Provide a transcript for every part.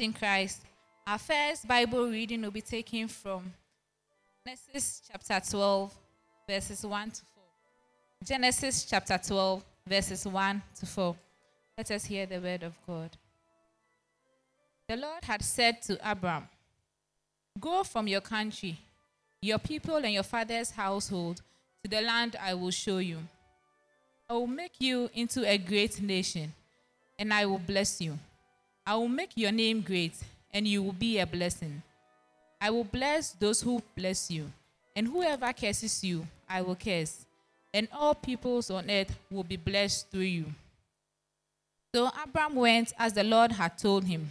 in Christ. Our first Bible reading will be taken from Genesis chapter 12, verses 1 to 4. Genesis chapter 12, verses 1 to 4. Let us hear the word of God. The Lord had said to Abram, Go from your country, your people, and your father's household to the land I will show you. I will make you into a great nation, and I will bless you. I will make your name great, and you will be a blessing. I will bless those who bless you, and whoever curses you, I will curse, and all peoples on earth will be blessed through you. So Abram went as the Lord had told him,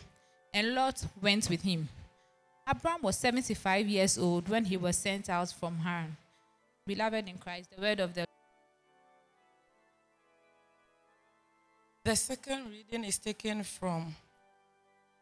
and Lot went with him. Abram was 75 years old when he was sent out from Haran. Beloved in Christ, the word of the The second reading is taken from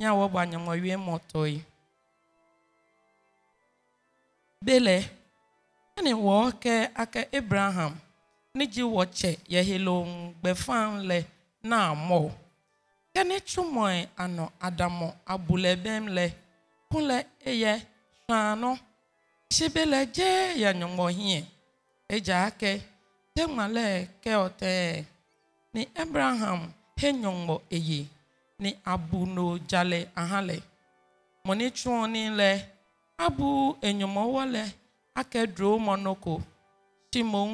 nya wo gbanye mo wie moto yi bele ani wo ke aka abraham ni ji wo che ye helo gbe fan le na mo ke ni chumo e ano adamo abule bem le kunle eye shano shibele je ya nyomo hie eja ake te male ke ote ni abraham he nyomo eye ni abuno jale ahale moni chuoni le abu enyomowo le ake dro monoko timon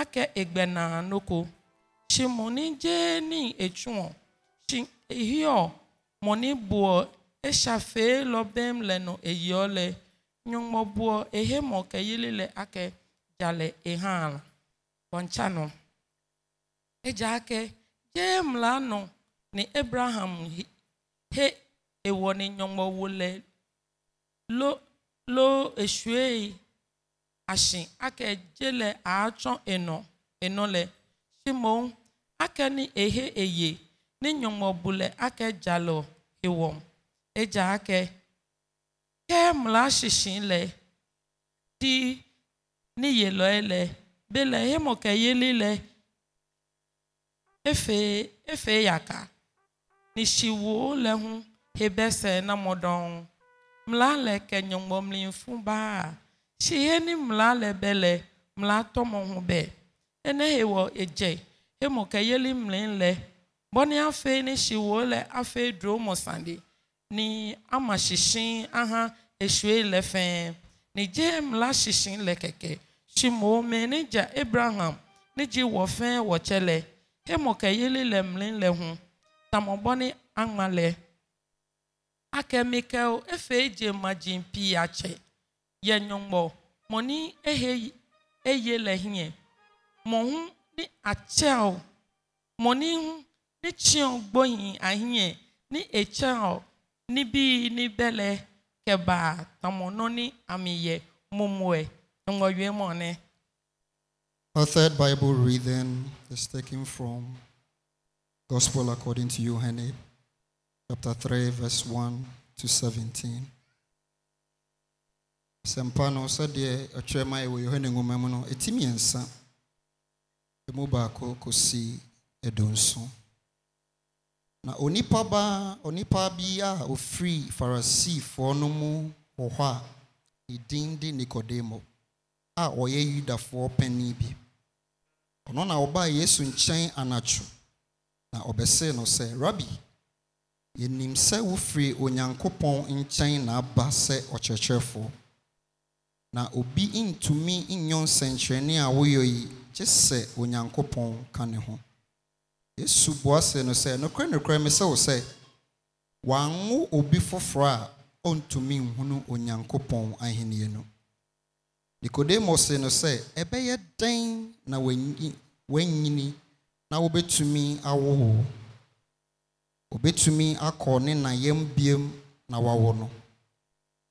ake egbena noko shimoni je ni echuon shin ehio moni buo eshafe lobem leno eyole nyongmo buo ehemo keyile le ake jale ehala bonchano eja ake jem la no ni abraham he ewɔ ne nyɔmɔwo le lo lo esue asi ake dze le atsɔ enɔ enɔ le simon ake ni ehe eye ne nyɔmɔbu le ake dza le ewɔm edza ake ke mla sisi le ti ni yelɔe le be le hemɔ ke yeli le efe efe yaka nishiwo le ŋu hebese na mɔɖɔŋu mla le kenyɔmɔmlinfu baa si he ni mla le be le mla tɔmɔ ŋu be ene he wɔ edze emɔ ke yeli mli le bɔni afe ni shiwo le afe dro mɔsande ni ama shishi aha esue le fɛn ni dze mla shishi le keke shimo me ni abraham ni dzi wɔ fɛn wɔtsɛ le emɔ ke yeli le mli le ŋu. tamobone angmale akemikel efe eji maji mpi ya che ye nyongbo moni ehe eye lehie mo hu ni achel moni hu ni chion gboyin ahie ni echel ni bi ni bele keba tamono ni amiye mumwe ngoywe A third Bible reading is taken from Gospel according to John, chapter 3, verse 1 to 17. Sempa no sɛdeɛ ɔtwerɛ ma ɛwɔ yohane nwoma mu no ɛti mmiɛnsa ɛmu baako kɔsi ɛdonso na onipa ba, onipa bi a ofiri farisifoɔ no mu wɔ hɔ a ne din de nikodemo a ɔyɛ yudafoɔ panin bi ɔno na ɔbaa yesu nkyɛn anatwo na ɔbɛsee no sɛ rabi enim sɛ wofiri onyankopɔn nkyɛn na aba sɛ ɔkyerɛkyerɛfoɔ na obi ntumi nyɛ nsɛnkyerɛnne a woyɛ yi gye sɛ onyankopɔn ka ne ho yesu buase no sɛ nokorɛ nokorɛ me sɛ wo sɛ obi foforɔ a ɔntumi nhunu onyankopɔn ahenni no nikodemo se no sɛ ɛbɛyɛ dan na wanyini na wobɛtumi awo wo obɛtumi akɔ ne nayam biem na wawo no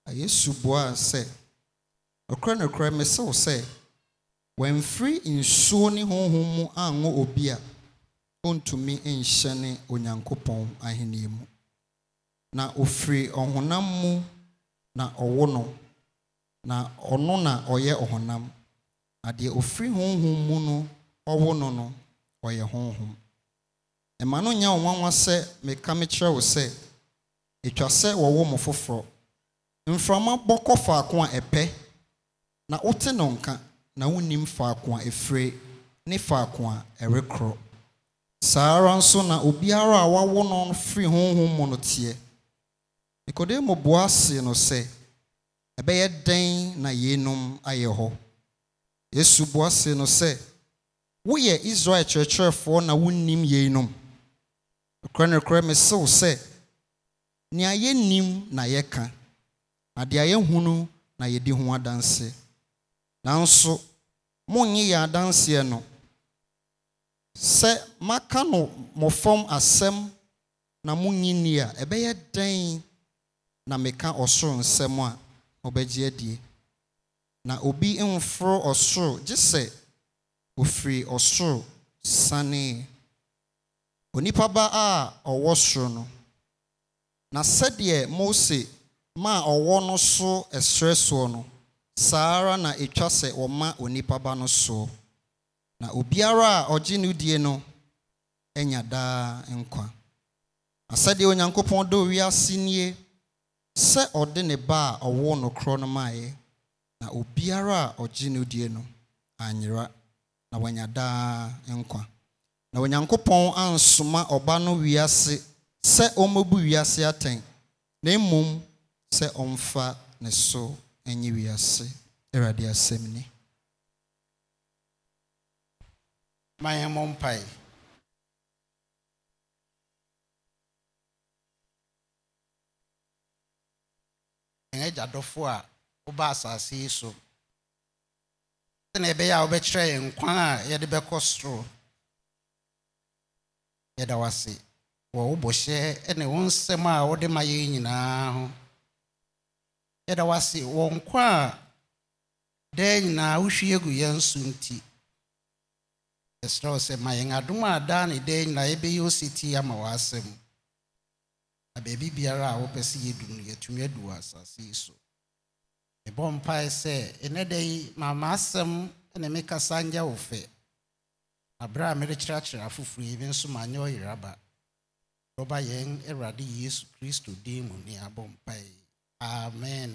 na yesu buaa sɛ nokorɛ nokorɛ mesew sɛ wɔamfiri nsuo ne honhom mu anwo obi a ɔntumi nhyɛ ne onyankopɔn ahenni mu na ofiri ɔhonam mu na ɔwo no na ɔno na ɔyɛ ɔhonam na deɛ ofiri honhom mu no ɔwo no no ɔyɛ honhom ɛma no nya nwanwa sɛ meka mekyerɛ wo sɛ ɛtwa sɛ wɔwo mo foforɔ mframa bɔ faako a ɛpɛ na wote no nka na wonnim faako a ɛfire ne faako a ɛrekorɔ saa ara nso na obiara a wawo no firi honhom mu no teɛ nikodemo boa see no sɛ ɛbɛyɛ dɛn na yeinom ayɛ hɔ yesu boa see no sɛ woyɛ israel kyerɛkyerɛfoɔ na wonnim yeinom nokorɛ nokorɛ me sew sɛ nea yɛnnim na yɛka na deɛ yɛhunu na yɛdi ho adanse nanso monnye yɛn adanseɛ no sɛ maka no mmɔfam asɛm na monnye nni a ɛbɛyɛ dɛn na meka ɔsoro nsɛm a ɔbɛgye adie na obi mforo ɔsoro gye sɛ ofiri ɔsoro sanee onipa ba a ɔwɔ soro no na sɛdeɛ mose ma ɔwɔ no so ɛsrɛ soɔ no saa ara na ɛtwa sɛ ɔma onipa ba no soɔ na obiara a ɔgye no die no anya daa nkwa asɛdeɛ onyankopɔn dɔ wiase nie sɛ ɔde ne ba a ɔwɔ korɔ no maeɛ na obiara a ɔgye no die no anyera na wanya daa nkwa na onyankopɔn ansoma ɔba no wiase sɛ ɔmmɛbu wiase atɛn na mmom sɛ ɔmfa ne so nye wiase awurade asɛm ni ma yɛn mmɔ a woba asase yi so na ɛbɛyɛ a wobɛkyerɛ yɛn nkwan a yɛde bɛkɔ soro yɛda wase wɔ wo bɔhyɛ ne wo nsɛm a wode ma yɛn nyinaa ho yɛda wase wɔ nkwa a daa nyinaa wohwie gu yɛn so nti ɛserɛ wo sɛ ma yɛn adom a daa ne daa nyinaa yɛbɛyɛ oseti ama w'asɛm na baabi biara a wopɛ sɛ yɛdu no yɛatumi adu wɔ asase yi so mebɔ mpae sɛ ɛnɛ da yi maama asɛm na mekasa nyɛ wo fɛ aberɛ a mede kyerɛkyerɛ yesu kristo din mu ne amen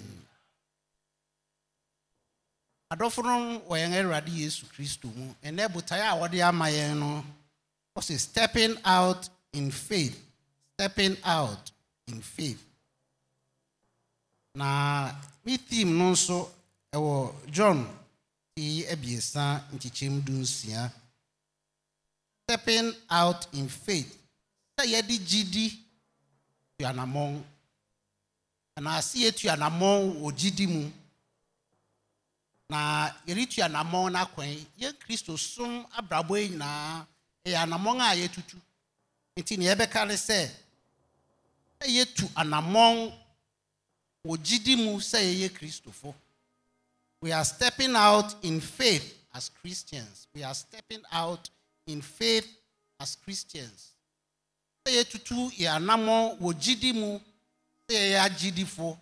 adɔfo no wɔ yesu kristo mu ɛnɛ botae a wɔde no ɔse stepping out in faith stepping out in faith na me tim no nso ɛwɔ john ti abiesa nkyekyɛm du nsia stepping out in faith sɛ yɛde gyidi tu anammɔn anaase yɛtu anammɔn wɔ gyidi mu na yɛretu anammɔn no akwan yɛn kristo som abrabɔ yi nyinaa ɛyɛ anammɔn a yɛtutu nti ne yɛbɛka ne sɛ sɛ yɛtu anammɔn We are stepping out in faith as Christians. We are stepping out in faith as Christians. Sɛ yɛtutu yɛ anammɔ wɔ gyidi mu sɛ yɛyɛ agyidifo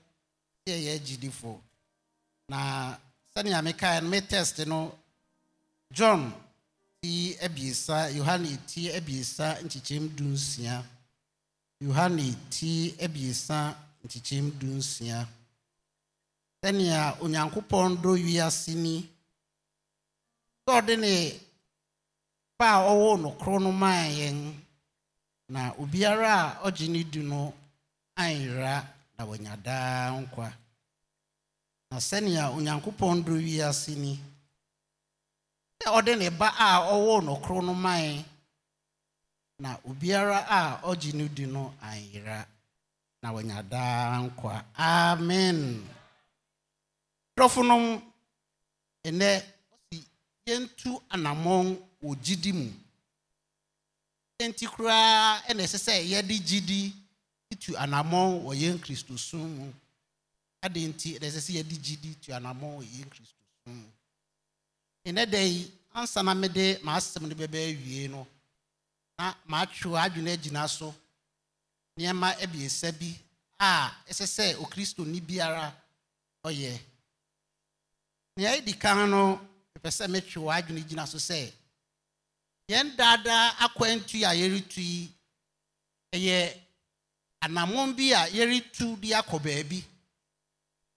sɛ yɛyɛ agyidifo. Na sani mekae no me test no John ti abiesa Yohane ti abiesa nkyekyɛm dunsia Yohane ti abiesa nkyekyɛm du nsia sɛnea onyankopɔn dɔ wiase ni sɛ ɔde ne ba a ɔwɔ no na obiara a ɔgye ne di no anyera na wanya daa nkwa na sɛnea onyankopɔn dɔ wiase ni sɛ ɔde ne ba a ɔwɔ na obiara a ɔgye na wɔanya daa nkwa amen dɔfonom ɛnɛ ɔsi yɛntu anammɔn wɔ gyidi mu nti koraa ɛna ɛsɛ sɛ yɛde gyidi tu anammɔn wɔ yɛn kristosom mu ade nti ɛna ɛsɛ sɛ yɛde gyidi tu anammɔn wɔ yɛn kristosom mu ɛnɛ da yi ansa na mede m'asɛm no bɛbɛ awie no na matwe adwene agyina so nneɛma abiesa bi a ɛsɛ sɛ okristoni biara ɔyɛ nea ɛdi kan no ɛpɛ sɛ metwe wɔ adwene gyina so sɛ yɛn daadaa akwantu a yɛretu yi ɛyɛ anammɔn bi a yɛretu de akɔ baabi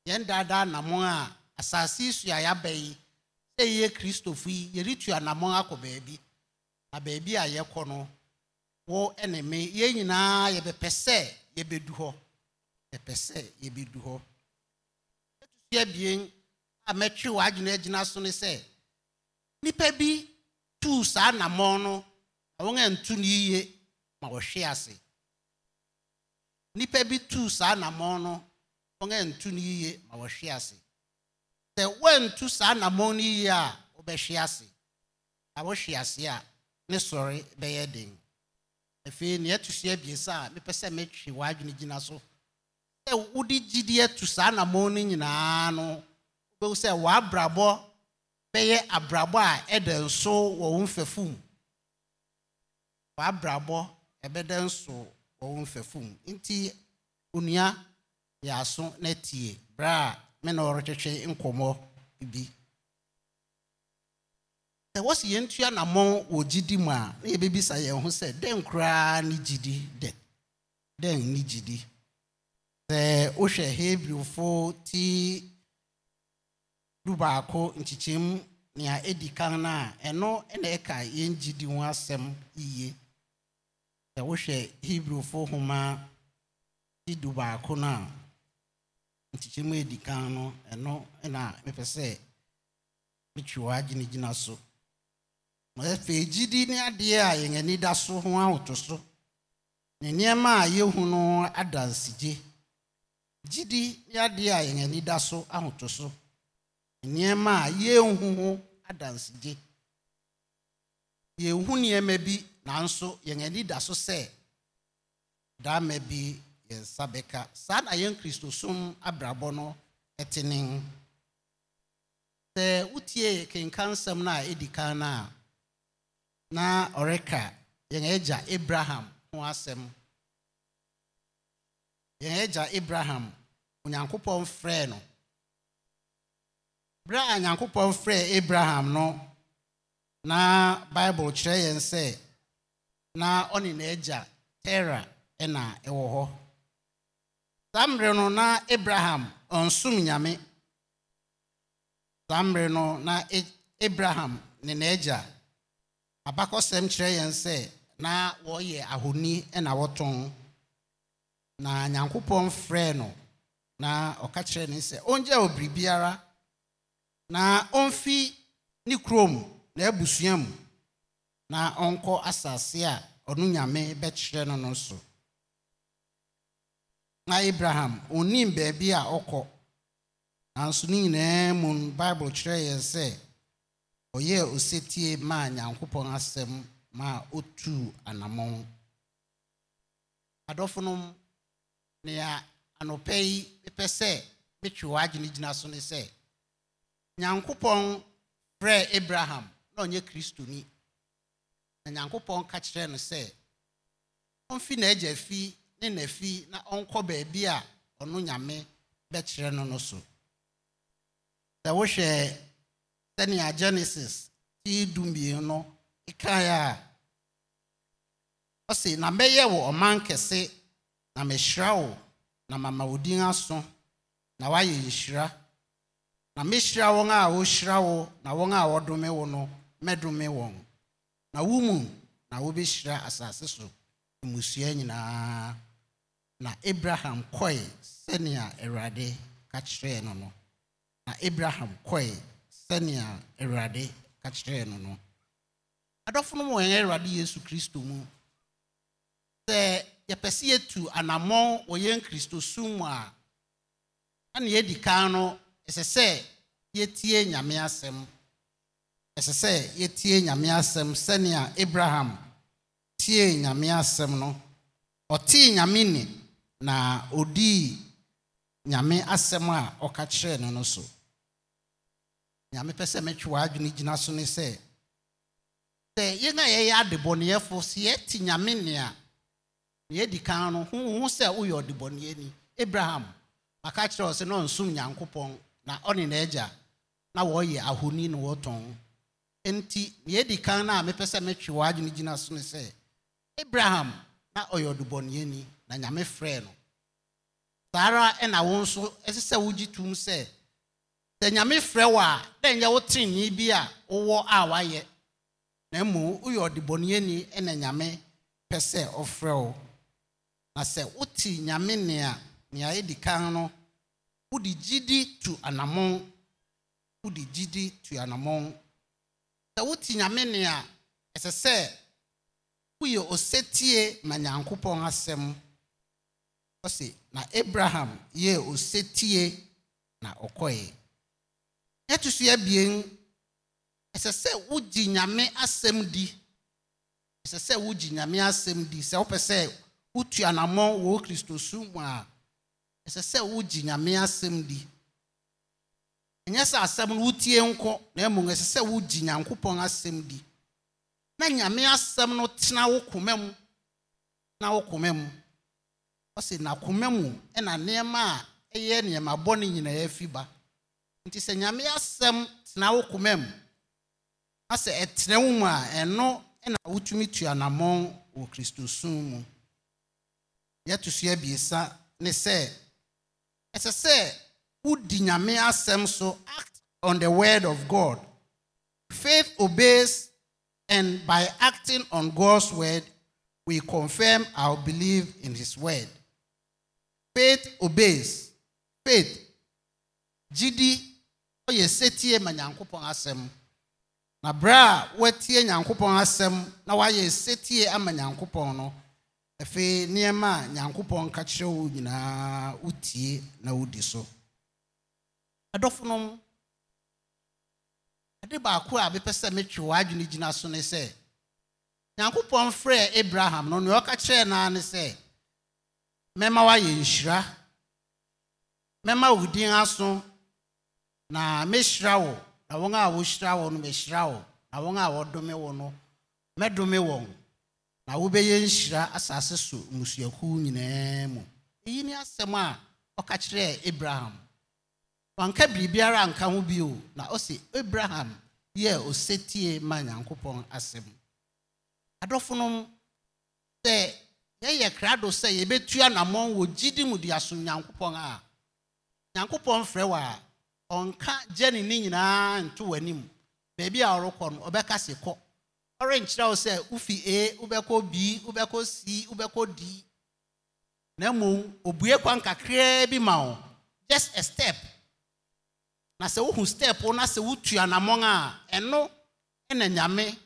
yɛn daadaa anammɔn a asase so a yɛaba yi sɛ yɛyɛ kristofo yi yɛretu anammɔn akɔ baabi na baabi a yɛkɔ no wo ne me yɛn nyinaa yɛbɛpɛ sɛ yɛbɛdu hɔ yɛpɛ sɛ yɛbɛdu hɔ ɛtutu abien a mɛtwe w'adwene agyina so ne sɛ Nipa bi tuu saa nammɔn no na wɔn antu no yie ma wɔhwe ase Nipa bi tuu saa nammɔn no wɔn antu no yie ma wɔhwe ase sɛ wɔantu saa nammɔn no yie a wɔbɛhwe ase na wɔhwe ase a ne sɔre bɛyɛ den afei nea ɛto so abiesa a mepɛ sɛ metwe w'adwene gyina so sɛ wode gyidie to saa anammɔn no nyinaa no wobɛhu sɛ w'abrabɔ bɛyɛ abrabɔ a ɛda nso wɔ wo mfɛfo mu w'abrabɔ ɛbɛda nso wɔ wo mfɛfo mu nti onua yɛ aso na tie berɛ a me na ɔretwetwe nkɔmmɔ bi sɛ wɔsi yɛn tua namɔ wɔ gyidi mu a na yɛbɛbisa yɛn ho sɛ dɛn koraa ne gidi dɛ dɛn ne gidi sɛ wohwɛ hebrewfo ti du baako nkyekyeɛm nea ɛdi kan na a ɛno na ɛka yɛn gidi ho asɛm yie sɛ wohwɛ hebrewfo homa ti du baako na a nkyekyeɛm kan no ɛno na mepɛ sɛ metwe wɔ agyinagyina so ma afei gyidi ne adeɛ a yɛn ani da so ho ahoto so ne nneɛma a yɛhu no adansigye gyidi ne adeɛ a yɛn ani da so ahoto so ne nneɛma a yɛnhu ho adansigye yɛnhu nneɛma bi nanso yɛn ani da so sɛ daama bi yɛn nsa bɛka saa na yɛn kristosom abrabɔ no ɛte ne sɛ wotie kenka nsɛm no a ɛdi kan no a na ɔreka yɛn agya abraham ho asɛm yɛn agya abraham onyankopɔn frɛɛ no berɛ a nyankopɔn frɛɛ abraham nọ na bible kyerɛ yɛn sɛ na ɔne n'agya tera ɛna ɛwɔ hɔ saa mmerɛ no na abraham ɔnsom nyame saa mmerɛ no na abraham ne n'agya abakɔsɛm kyerɛ yɛn sɛ na wɔyɛ ahoni na wɔtɔn na nyankopɔn frɛɛ no na ɔka kyerɛ ne sɛ ɔngya wɔ biribiara na ɔmfi ne kurom na abusua mu na ɔnkɔ asase a ɔno nyame bɛkyerɛ no no so na abraham ɔnnim baabi a ɔkɔ nanso ne nyinaa mu bible kyerɛ yɛn sɛ ɔyɛɛ osetie maa nyankopɔn asɛm ma ɔtuu anammɔn adɔfonom nea anɔpɛ yi mepɛ sɛ metwe wɔ agyene gyina so ne sɛ nyankopɔn Pre abraham na ɔnyɛ kristoni na nyankopɔn ka kyerɛɛ no sɛ ɔmfi n'agya fi ne n'afi na ɔnkɔ baabi a ɔno nyame bɛkyerɛ no no so sɛ wohwɛ sɛnea genesis ti du mmienu kaeɛ a ɔsi na mɛyɛ wo ɔman kɛse na mɛhyira wo na mama wo din aso na woayɛ nhyira na mɛhyira wɔn a wɔhyira wo na wɔn a wɔdome wo no mɛdome wɔn na wo na wobɛhyira asase so mmusua nyinaa na abraham kɔe sɛnea awurade ka kyerɛɛ no no na abraham kɔe sɛnea awurade ka kyerɛɛ no no adɔfo no mu wɔn awurade yesu kristo mu sɛ yɛpɛ sɛ yɛtu anammɔn wɔ yɛn kristo sum mu a ɛne yɛdi kan no ɛsɛ sɛ yɛtie nyame asɛm ɛsɛ sɛ yɛtie nyame asɛm sɛnea abraham tie nyame asɛm no ɔtee nyame ne na ɔdii nyame asɛm a ɔka kyerɛɛ no no so nyamepɛ sɛ metwe w'adwene gyina so ne sɛ sɛ yɛn a yɛyɛ adebɔneyɛfo sɛ yɛte nyame nea nea yɛdi kan no ho sɛ woyɛ ɔdebɔneyɛni abraham maka kyerɛ ɔ sɛ na ɔnsom nyankopɔn na ɔne n'agya na wɔyɛ ahoni ne wɔtɔn enti na yɛdi kan no a mepɛ sɛ metwe w'adwene gyina so ne sɛ abraham na ɔyɛ ni na nyame frɛɛ no saa ara na wo nso ɛsɛ sɛ wogye tom sɛ sɛ nyame frɛ wo a dɛ nyɛ wo trenee bi a wowɔ a woayɛ na mmom woyɛ ɔdebɔneani ɛna nyame pɛ sɛ ɔfrɛ wo na sɛ wote nyame nea nea ɛdi kan no wode gidi tu anammɔn wode gidi tu anammɔn sɛ wote nyame nea ɛsɛ sɛ woyɛ osetie ma nyankopɔn asɛm ɔse na abraham yɛɛ osetie na ɔkɔeɛ ɛto so abien ɛsɛ sɛ wogye nyame asɛm di ɛsɛ sɛ wogye nyame asɛm di sɛ wopɛ sɛ wotu anammɔ wɔ kristo su mu a ɛsɛ sɛ wogye nyame asɛm di ɛnyɛ sɛ asɛm no wotie nkɔ na mmom ɛsɛ sɛ wogye nyankopɔn asɛm di na nyame asɛm no tena wo koma mu na wo koma mu ɔse na koma mu ɛna nneɛma a ɛyɛ nneɛma bɔne nyinaa afi ba nti sɛ nyame asɛm tena wo koma mu na sɛ ɛtena wo mu a ɛno na wotumi tu anammɔn wɔ kristosum mu yɛto so abiesa ne sɛ ɛsɛ sɛ wodi nyame asɛm so act on the word of god faith obeys and by acting on god's word we confirm our belief in his word faith obeys faith gidi ɔyɛ setie ma nyankopɔn asɛm na berɛ a watie nyankopɔn asɛm na wayɛ setie ama nyankopɔn no afei nneɛma a nyankopɔn ka kyerɛ wo nyinaa wotie na wodi so ɛdɔfonom ade baako a mepɛ sɛ metwe w'adwene gyina so ne sɛ nyankopɔn frɛɛ abraham no nea ɔka kyerɛɛ naa ne sɛ mɛma woayɛ nhyira mɛma wo din aso na mehyira wo na wɔn a wɔhyira wo no mehyira wo na wɔn a wɔdome wo no mɛdome wɔn na wobɛyɛ nhyira asase so mmusuakuw nyinaa mu eyi ne asɛm a ɔka kyerɛɛ abraham wanka biribiara anka ho bio na ɔse abraham yɛ osetie ma nyankopɔn asɛm adɔfonom sɛ yɛyɛ krado sɛ yɛbɛtu anammɔn wɔ gyidi mu de aso nyankopɔn a nyankopɔn frɛ wɔ a ɔnka gye ne ne nyinaa nto w'anim beebi a ɔrekɔ no ɔbɛka se kɔ ɔrenkyerɛ wo sɛ wofi a wobɛkɔ b wobɛkɔ c wobɛkɔ d na mmom obue kwan kakraa bi ma wo just a step na sɛ wohu step wo na sɛ wotu anammɔn a ɛno ɛna nyame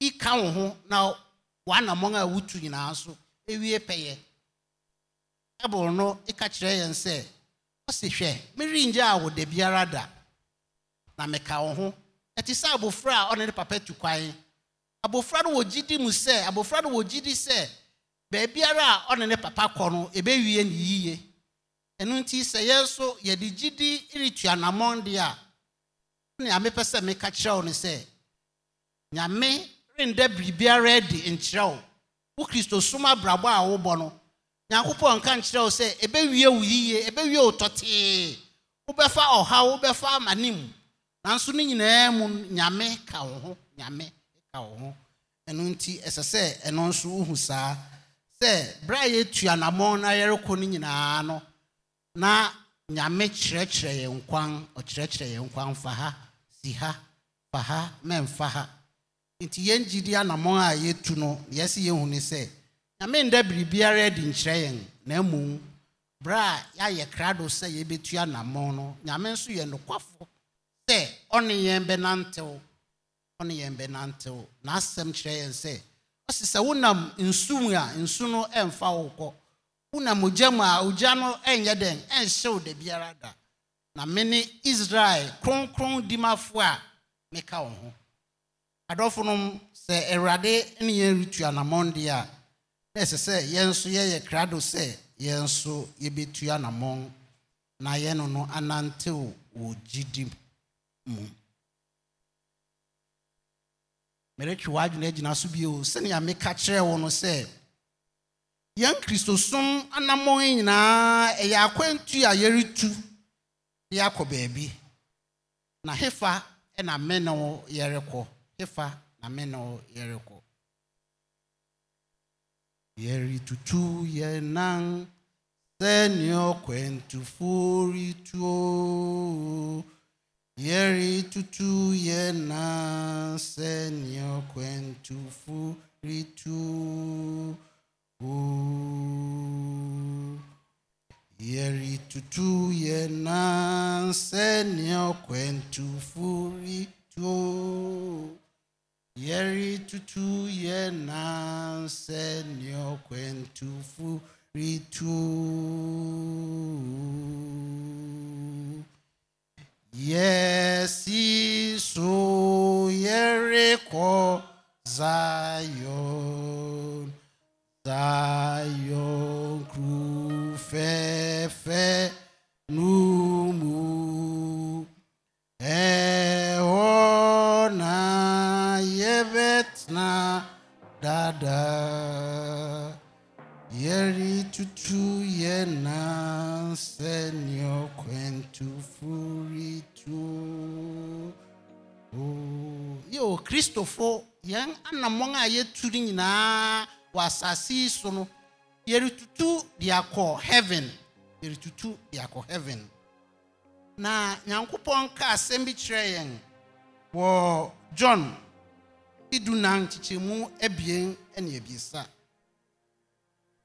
ika wo ho na w'anammɔn a wotu nyinaa so ɛwie pɛyɛ ɛboro no ɛka kyerɛ yɛn sɛ ɔsi hwɛ merengye a wo biara da na meka wo ho ɛte sɛ abofra a ɔne ne papa tu kwan abofra no wɔ gyidi mu sɛ abofra no wɔ gyidi sɛ baabiara a ɔne ne papa kɔ no ɛbɛwie ne yie ɛno nti sɛ yɛn nso yɛde gyidi retu anammɔn deɛ a ne amepɛ sɛ meka kyerɛ wo no sɛ nyame renda biribiara adi nkyerɛw wo wo kristosom abrabɔ a wobɔ no nyankopɔn nka nkyerɛ wo sɛ ɛbɛwie wo yie ɛbɛwie wo tɔtee wobɛfa ɔhaw wobɛfa amanim nanso ne nyinaa mu nyame ka wo ho nyame ka wo ho ɛno nti ɛsɛ sɛ ɛno nso wohu saa sɛ berɛ a yɛtu anammɔn na yɛrekɔ no nyinaa no na nyame kyerɛkyerɛ yɛn kwan ɔkyerɛkyerɛ yɛn kwan fa ha si ha fa ha mɛmfa ha nti yɛn gyidi anammɔn a yɛtu no yɛsi yɛhu ne sɛ nyame nda biribiara adi nkyerɛ yɛn na mmom berɛ a yɛayɛ krado sɛ yɛbɛtu anammɔn no nyame nso yɛ nokwafo sɛ ɔne yɛn bɛnantew ɔne yɛn bɛnantew n'asɛm kyerɛ yɛn sɛ ɔsi sɛ wonam nsu mu a nsu no ɛmfa wo kɔ wonam ogya mu a ogya no ɛnyɛ dɛn ɛnhyew da biara da na ne israel kronkron dimafoɔ a meka wo ho adɔfo nom sɛ awurade ne yɛn retu anammɔn deɛ a na ɛsɛ sɛ yɛn nso yɛyɛ krado sɛ yɛn nso yɛbɛtu anammɔn na yɛn no anantew wɔ gyidi mu meretwe w'adwene agyina so bio sɛnea meka kyerɛ wo no sɛ yɛn kristosom anammɔn nyinaa ɛyɛ akwantu a yɛretu de akɔ baabi na hefa na me ne wo yɛrekɔ hefa na me ne wo yɛrekɔ Yeri tutu ye senyo kwentu furi tuo. Yeri tutu ye senyo kwentu furi tuo. Yeri tutu ye senyo kwentu furi tuo yẹri tutu yẹ náà sẹni ọkwẹntufu ritu yẹsi su yẹri kọ zayon zion kuru fẹfẹ numu Eh, na dada. Yeri tutu yena senyo kwentu furi tu. Yo, Kristofo, yang anamonga a yɛturi nyinaa wɔ asase yi so no, yɛretutu de akɔ heaven. Yɛretutu de akɔ heaven. Na Nyankopɔn ka asɛm bi kyerɛ John dunan nkyekyɛmu abien ne abiesa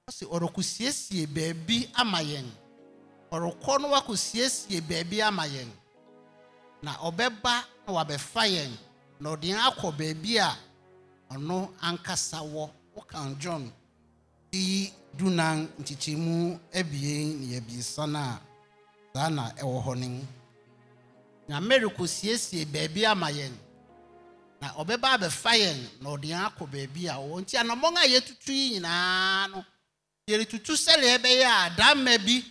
ɔsi ɔrekɔsiesie beebi ama yɛn ɔrekɔ no wakɔsiesie beebi ama yɛn na ɔbɛba na wabɛfa yɛn na ɔde yɛn akɔ baabi a ɔno ankasa wɔ wokan john yi dunan nkyekyɛmu abien ne abiesa no a saa na ɛwɔ hɔ no mu nyame rekɔsiesie beebi ama yɛn na ɔbɛba abɛfa yɛn na ɔde yɛn akɔ baabi a ɔwɔ nti anamɔn a yɛtutu yi nyinaa no yɛretutu sɛdeɛ ɛbɛyɛ a damma bi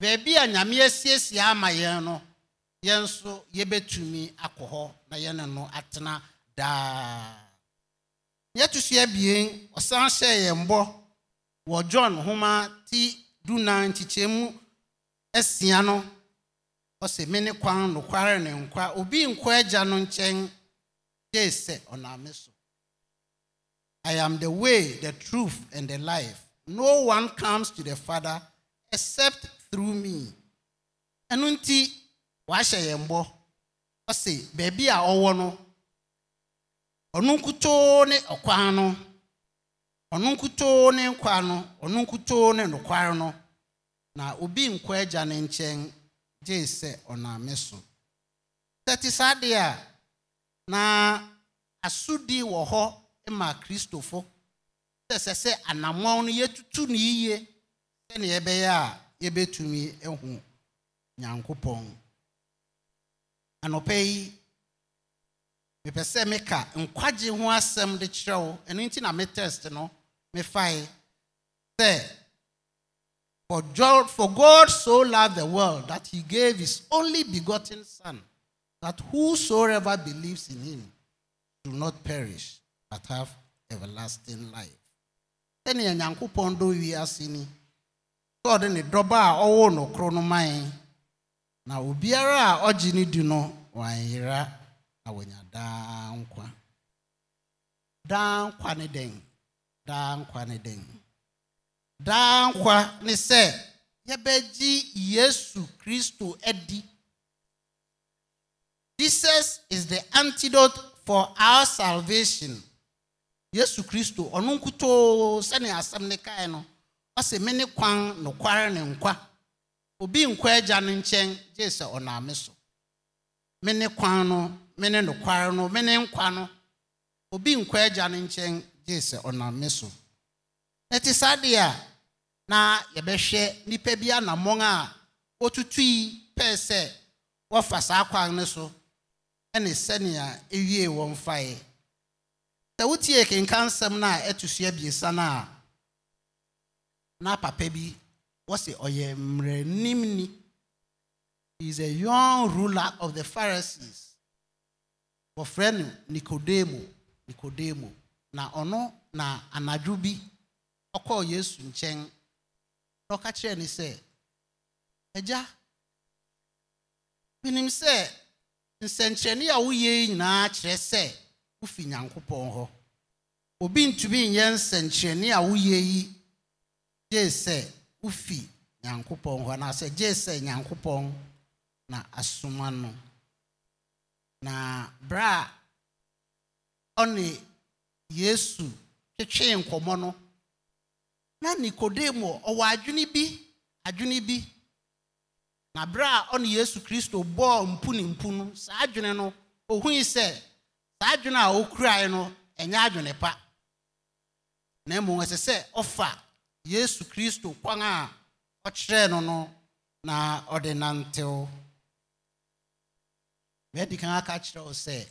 baabi a nyame asiesie ama yɛn no yɛn nso yɛbɛtumi akɔ hɔ na yɛne no atena daa yɛto so abien ɔsan hyɛɛ yɛn bɔ wɔ john homa ti dunan nkyekyɛmu asia no ɔsɛ me ne kwan nokware ne nkwa obi nkɔ agya no nkyɛn They said, Onameso. Oh, I am the way, the truth, and the life. No one comes to the Father except through me. Ɛno ti wahyɛ yɛn bɔ. Ɔse, baabi a ɔwɔ no, ɔno nkutoo ne ɔkwan no, ɔno nkutoo ne nkwa no, ɔno nkutoo ne nokware no, na obi nkwa agya ne nkyɛn gye sɛ ɔnam oh, so. Sɛ te saa deɛ a, na asodi wọ họ ma kristofo sɛ sɛ sɛ anammɔn no yɛtutu ne yie sɛnea yɛbɛyɛ a yɛbɛtumi ahu nyankopɔn ya yi mepɛ sɛ meka nkwagye ho asɛm de kyerɛ wo ɛno nti na me test no mefae sɛ for god so loved the world that he gave his only begotten son that whosoever believes in him do not perish but have everlasting life. sɛnea nyankopɔn dɔ wiase ni sɛ ɔde ne dɔba a ɔwo na obiara a ɔgye ne di no wanyera na wanya daa nkwa daa nkwa ne den daa nkwa ne yesu kristo edi. Jesus is the antidote for our salvation. Yesu Kristo ɔno nkutoo sani asam ne kae no ɔsɛ me ne kwan nokware ne nkwa obi nkwa ịja no nkyɛn gye sɛ ɔname so me ne kwan no me ne nokware no nkwa no obi nkɔ agya no nkyɛn gye sɛ ɔname so ɛte saa deɛ a na yɛbɛhwɛ nipa bi anammɔn a wɔtutui pɛɛ sɛ wɔfa saa kwan no so ne sɛnea ɛwie wɔn faeɛ sɛ wotie kenka nsɛm no a ɛto so abiesa no a na papa bi wɔse ɔyɛ mmerɛnimni he is a young ruler of the pharisees wɔfrɛ no nikodemo nikodemo na ɔno na anadwo bi ɔkɔɔ yesu nkyɛn na ɔka kyerɛɛ ne sɛ agya menim sɛ nsɛnkyerɛnne a woyɛ nyinaa kyerɛ sɛ wofi nyankopɔn hɔ obi ntumi nyɛ nsɛnkyerɛnne a woyɛ yi gye sɛ wofi nyankopɔn hɔ anaasɛ gye sɛ nyankopɔn na asoma no na berɛ a ɔne yesu twetwee nkɔmmɔ no na nikodemo ɔwɔ adwene bi adwene bi na bere a ọ na yesu kristo bọọ mpu na no saa adwene no ohughị sị saa adwene a no enye adwene pa na mmom ɛsɛ sɛ ɔfa yesu kristo kwan a ɔkyerɛɛ no no na ɔde nantew meadi kan aka kyerɛ wo sɛ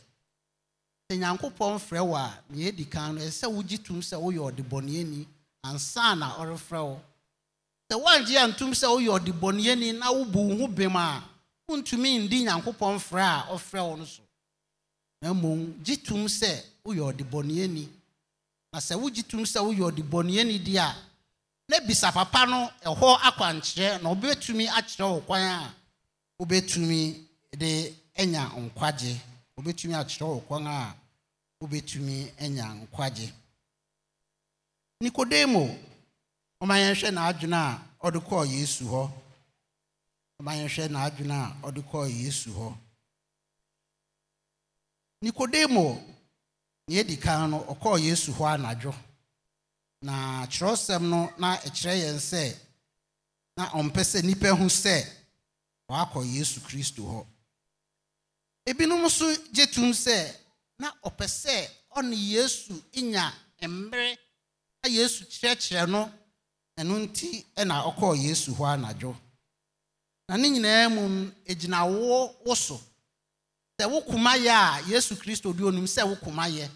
na woangye a ntom sɛ woyɛ ɔdebɔneyɛni na wobu wo ho bem a wontumi ndi nyankopɔn frɛ a ɔfrɛ wo no so na mmom gye tom sɛ woyɛ ɔdebɔneyɛni na sɛ wogye tom sɛ woyɛ ɔdebɔneyɛni deɛ a na bisa papa no ɛhɔ akwankyerɛ na wobɛtumi akyerɛ wo kwan a wobɛtumi de anya nkwagye wobɛtumi akyerɛ wo kwan a wobɛtumi anya nkwagye nikodemo ɔma yɛnhwɛ n'adwene a ɔde kɔɔ yesu hɔ ɔma yɛnhwɛ n'adwene a ɔde kɔɔ yesu hɔ nikodemo nea ɛdi kan no ɔkɔɔ yesu hɔ anadwo na kyerɛwsɛm no na ɛkyerɛ yɛn sɛ na ɔmpɛ sɛ nnipa hu sɛ wakɔ yesu kristo hɔ ebinom nso gye tom sɛ na ɔpɛ sɛ ɔne yesu nya mmerɛ na yesu kyerɛkyerɛ no ɛno nti na ɔkɔɔ yesu hɔ anadwo na ne nyinaa mu ɛgyina wo wo so sɛ wo koma yɛ a yesu kristo di onim sɛ wo koma yɛ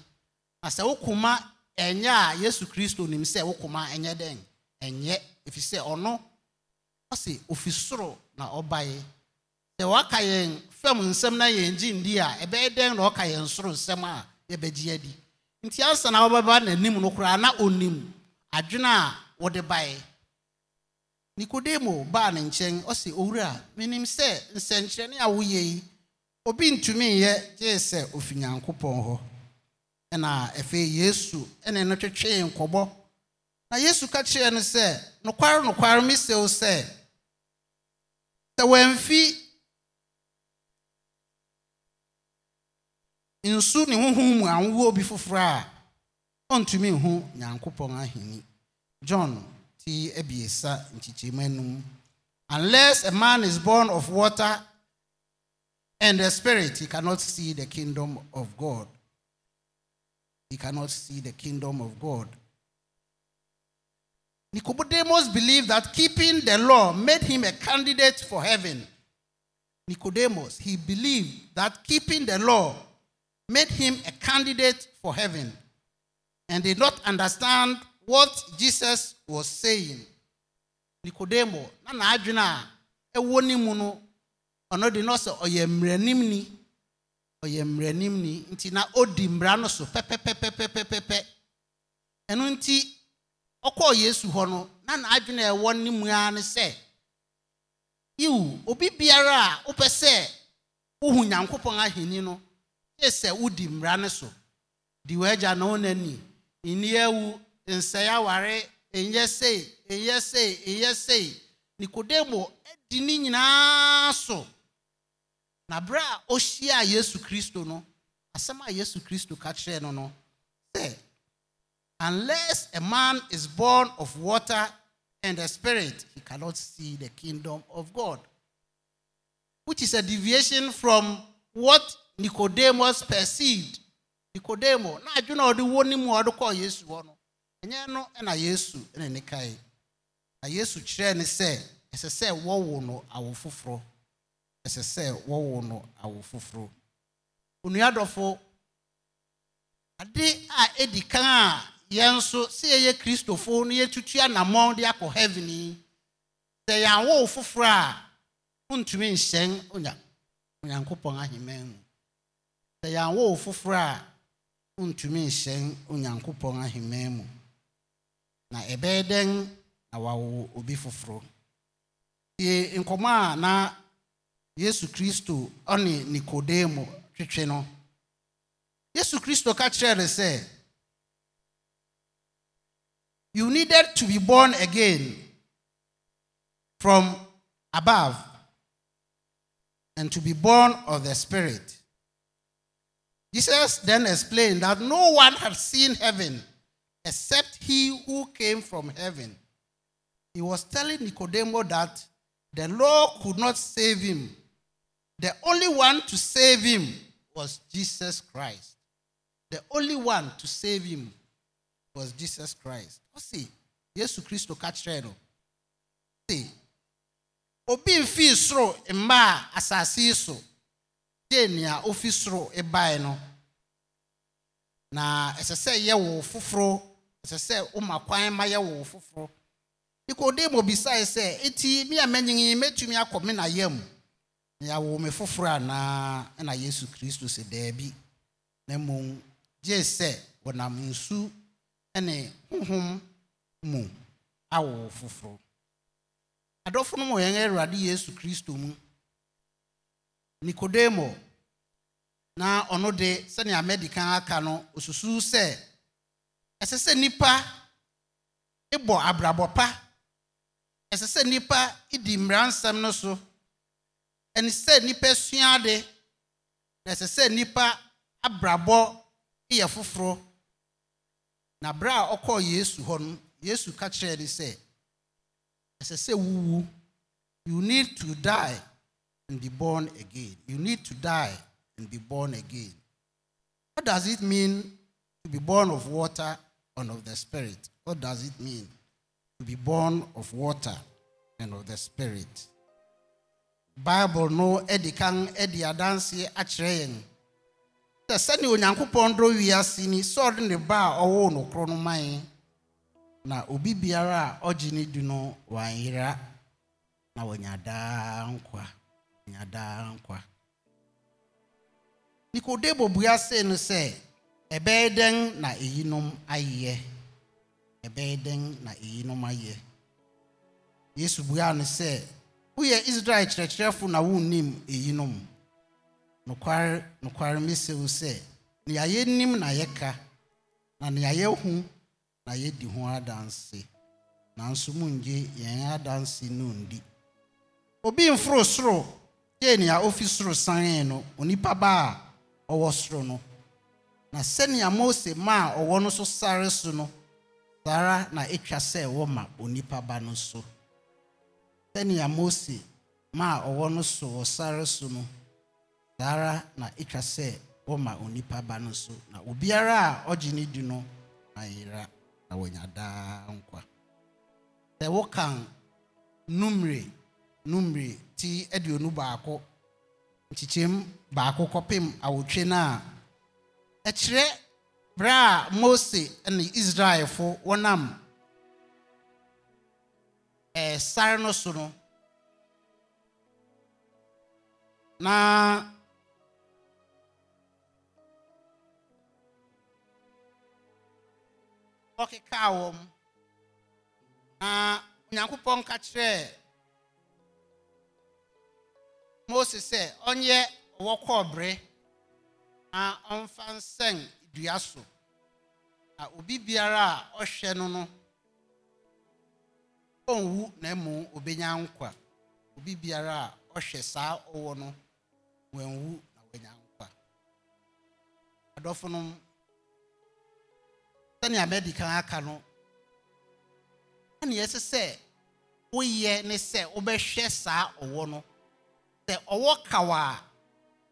na sɛ wo koma ɛnyɛ a yesu kristo nim sɛ wo koma ɛnyɛ dɛn ɛnyɛ ɛfiri sɛ ɔno ɔse ofi soro na ɔbaeɛ sɛ waka yɛn fam nsɛm na yɛn gye ndi a ɛbɛyɛ dɛn na ɔka yɛn soro nsɛm a yɛbɛgye adi nti ansa na wɔbɛba n'anim no koraa na onim adwene a wɔde bae nikodemo baa ne nkyɛn ɔsɛ owura menim sɛ nsɛnkyerɛnne a woyɛ yi obi ntumi nyɛ gye sɛ ofi pɔn hɔ ɛna afei yesu ɛna no twetwee nkɔbɔ na yesu ka kyerɛɛ no sɛ nokware nokware mesɛ sɛ sɛ wɔamfi nsu ne honhom mu anwowɔ bi foforɔ a ɔntumi nhu nyankopɔn ahenni John t ebiesa nkyikyirima unless a man is born of water and the spirit he cannot see the kingdom of God he cannot see the kingdom of God Nicodemus believed that keeping the law made him a candidate for heaven Nicodemus he believed that keeping the law made him a candidate for heaven and did not understand what jesus was saying nikodemo na n'adwene a ɛwɔ ne mu no ɔno de na ɔsɛ ɔyɛ mmeranimni ɔyɛ mmeranimni nti na ɔdi mmara no so pɛpɛpɛpɛpɛpɛ ɛno nti ɔkɔɔ yesu hɔ no na n'adwene a ɛwɔ ne mu ara ne sɛ iwu obi biara a wopɛ sɛ wohu nyankopɔn ahenni no gye sɛ wodi mmara no so di w'agya na wo n'ani nni nsɛe aware nyɛ sei nyɛ sei nyɛ sei nikodemo di ne nyinaa so na bere a ɔhyia yesu kristo no asɛm a yesu kristo ka kyerɛɛ no no sɛ unless a man is born of water and the spirit he cannot see the kingdom of god which is a deviation from what nicodemus perceived Nicodemus, na adwene a ɔde wɔ ne mu a ɔde kɔɔ yesu hɔ no ɛnyɛ no na yesu na ne kae na yesu kyerɛɛ ne sɛ ɛsɛ sɛ wɔwo no awo foforɔ ɛsɛ sɛ wɔwo no awo foforɔ onua dɔfo ade a ɛdi kan a yɛn nso sɛ yɛyɛ kristofo no yɛtutu anammɔn de akɔ heaven yi sɛ yɛn awo foforɔ a ntumi nhyɛn onya onyankopɔn ahemman mu sɛ yɛn awo foforɔ a ntumi nhyɛn onyankopɔn ahemman mu na ebeden dɛn na wawo obi foforɔ na yesu kristo ɔne nikodemo twetwe no yesu kristo ka kyerɛɛ no sɛ you needed to be born again from above and to be born of the spirit jesus then explained that no one had seen heaven except he who came from heaven. He was telling Nicodemus that the law could not save him. The only one to save him was Jesus Christ. The only one to save him was Jesus Christ. See, Yesu Kristo ka kyerɛ no. obi nfi soro mmaa asase yi so, gye ofi soro no. Na ɛsɛ sɛ wo foforo ɛsɛ sɛ woma kwan ma yɛ wo foforɔ nikodemo bisae sɛ enti me a manyin mɛtumi akɔ me na yam na me foforɔ anaa ɛna yesu kristo sɛ daabi na mmom gye sɛ wɔnam nsu ne honhom mu awo foforɔ adɔfo no mu yɛn awurade yesu kristo mu nikodemo na ɔno de sɛnea madi kan aka no osusuw sɛ ɛsɛ sɛ nnipa bɔ abrabɔ pa ɛsɛ sɛ nnipa di mmaransɛm no so ɛne sɛ nnipa sua ade na ɛsɛ sɛ nnipa abrabɔ yɛ foforɔ na bere a ɔkɔɔ yesu hɔ no yesu ka kyerɛɛ ne sɛ ɛsɛ sɛ wuwu you need to die and be born again you need to die and be born again what does it mean to be born of water and of the Spirit. What does it mean to be born of water and of the Spirit? Bible no edikang kan edi adanse akyerɛ yɛn sɛ sɛnea onyankopɔn dɔ ne ba a no korɔ no na ubi biara ojini ɔgye ne na wanyada daa nkwa wɔnya nkwa nikodebo bua se no ɛbɛyɛ dɛn na eyinom ayɛ ɛbɛyɛ dɛn na eyinom ayɛ yesu buaa no sɛ woyɛ israel kyerɛkyerɛfo na wonnim eyinom nokware nokware mesɛ wo sɛ nea yɛnim na yɛka na nea yɛhu na yɛdi ho adanse nanso mungye yɛn adanse no ndi obi mforo soro gye nea ofi soro sanee no onipa ba a ɔwɔ soro no na sɛnea mose ma a ɔwɔ no so sare so no saa ara na ɛtwa sɛ ɛwɔ ma onipa ba no so sɛnea mose ma a ɔwɔ no so wɔ sare so no saa ara na ɛtwa sɛ wɔma onipa ba no so na obiara a ɔgye ne di no ayera na wɔanya daa nkwa sɛ wokan numre numre ti aduonu baako nkyekyɛm baako kɔpem awotwe no a ɛkyerɛ berɛ a mose ne israelfo wɔnam sare no so no na ɔkekaa wɔm na onyankopɔn ka kyerɛɛ mose sɛ ɔnyɛ ɔwɔ kɔɔ na ɔmfa nsɛn dua so na obi biara a ɔhwɛ no no ɔnwu na emu obenya nkwa obi biara a ɔhwɛ saa ɔwɔ no wɔnwu na wɔanya nkwa adɔfo no sɛnea mɛdi kan aka no ɛnea ɛsɛ sɛ woyɛ ne sɛ wobɛhwɛ saa ɔwɔ no sɛ ɔwɔ kawa a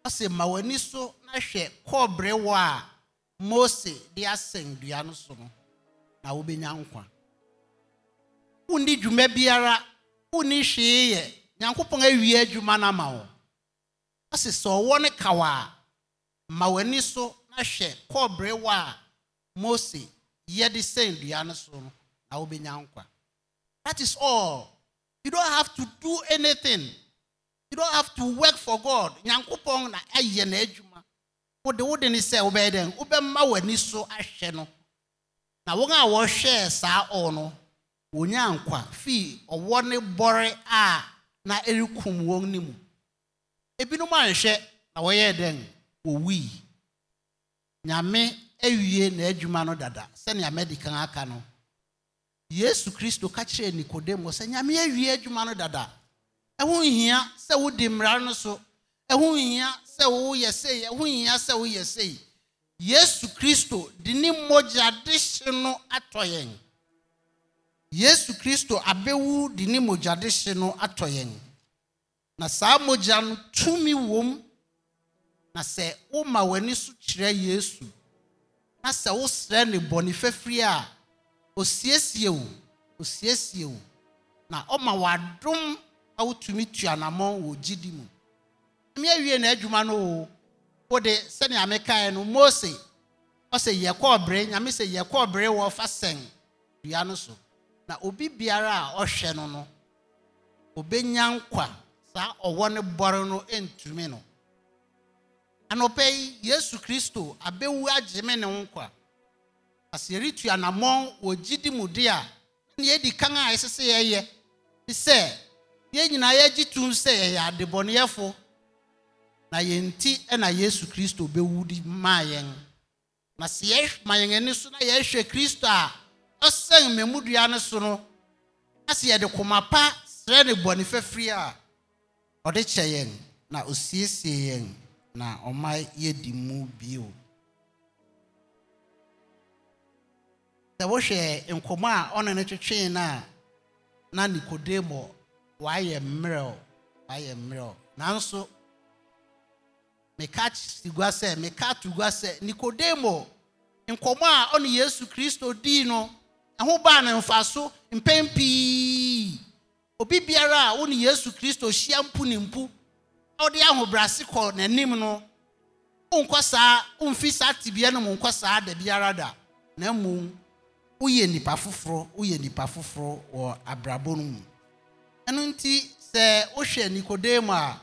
ɔsɛ ma w'ani so na hwɛ kɔɔbere wɔ a mose de asɛn dua no so no na wobɛnya nkwa wonni dwuma biara wonni hwee yɛ nyankopɔn awie adwuma no ama wo ase sɛ ɔwɔ ne kaw a ma w'ani so na hwɛ kɔɔbere wɔ a mose yɛde sɛn dua no so no na wobɛnya nkwa that is all you don't have to do anything you don't have to work for god nyankopɔn na ayɛ n'adwuma wode wode ne sɛ wobɛyɛ dɛn wobɛma w'ani so ahwɛ no na wɔn a wɔhwɛ saa ɔɔ no wɔnya nkwa fii ɔwɔ ne bɔre a na ɛrekum wɔn ne mu ebinom anhwɛ na wɔyɛɛ dɛn wɔwui nyame awie n'adwuma no dada sɛnea mɛdikan aka no yesu kristo ka kyerɛɛ nikodemo sɛ nyame awie adwuma no dada ɛho nhia sɛ wodi mmara no so ɛho nhia sɛ woyɛ sei ɛho hia sɛ woyɛ sei yesu kristo de ne mogya de hye no atɔ yɛn yesu kristo abɛwu de ne mogya de hye no atɔ yɛn na saa mogya no tumi wom na sɛ woma w'ani so kyerɛ yesu na sɛ wosrɛ ne bɔne fafiri a osiesie wo osiesie wo na ɔma w'adom a wotumi tuanamɔ wɔ gyidi mu mmea wie na n'adwuma no o wode sɛnea mekaeɛ no mose ɔsɛ yɛkɔɔ bere nyame sɛ yɛkɔɔ bere wɔ fa sɛn dua no so na obi biara a ɔhwɛ no no obɛnya nkwa saa ɔwɔ ne bɔre no ntumi no anɔpɛ yi yesu kristo abɛwu agyeme ne nkwa asɛ yɛretu anammɔn wɔ gyidi mu de a ne yɛdi kan a ɛsɛ sɛ yɛyɛ te sɛ yɛn nyinaa yɛagye tum sɛ yɛyɛ adebɔneyɛfo na yɛn ti na yesu kristo bɛwu de maa yɛn na sɛ yɛhwɛ ma yɛn ani so na yɛhwɛ kristo a ɔsɛn mmɛmudua no so no na sɛ yɛde koma pa srɛ ne bɔne fɛfiri a ɔde kyɛ yɛn na osiesie yɛn na ɔma yɛdi mu bio sɛ wohwɛ nkɔmɔ a ɔne no twetwee no a na nikodemo wayɛ mmerɛw wayɛ mmerɛw nanso meka gua sɛ meka to gua sɛ nikodemo nkɔmmɔ a ɔne yesu kristo dii no ɛho baa ne mfa so mpɛn pii obi biara a wone yesu kristo hyia mpu ne mpu a wode ahobrɛase kɔ n'anim no wonkɔ saa womfi saa tibea no mu nkɔ saa da biara da na mmom woyɛ nnipa foforɔ woyɛ nnipa foforɔ wɔ abrabɔ no mu ɛno nti sɛ wohwɛ nikodemo a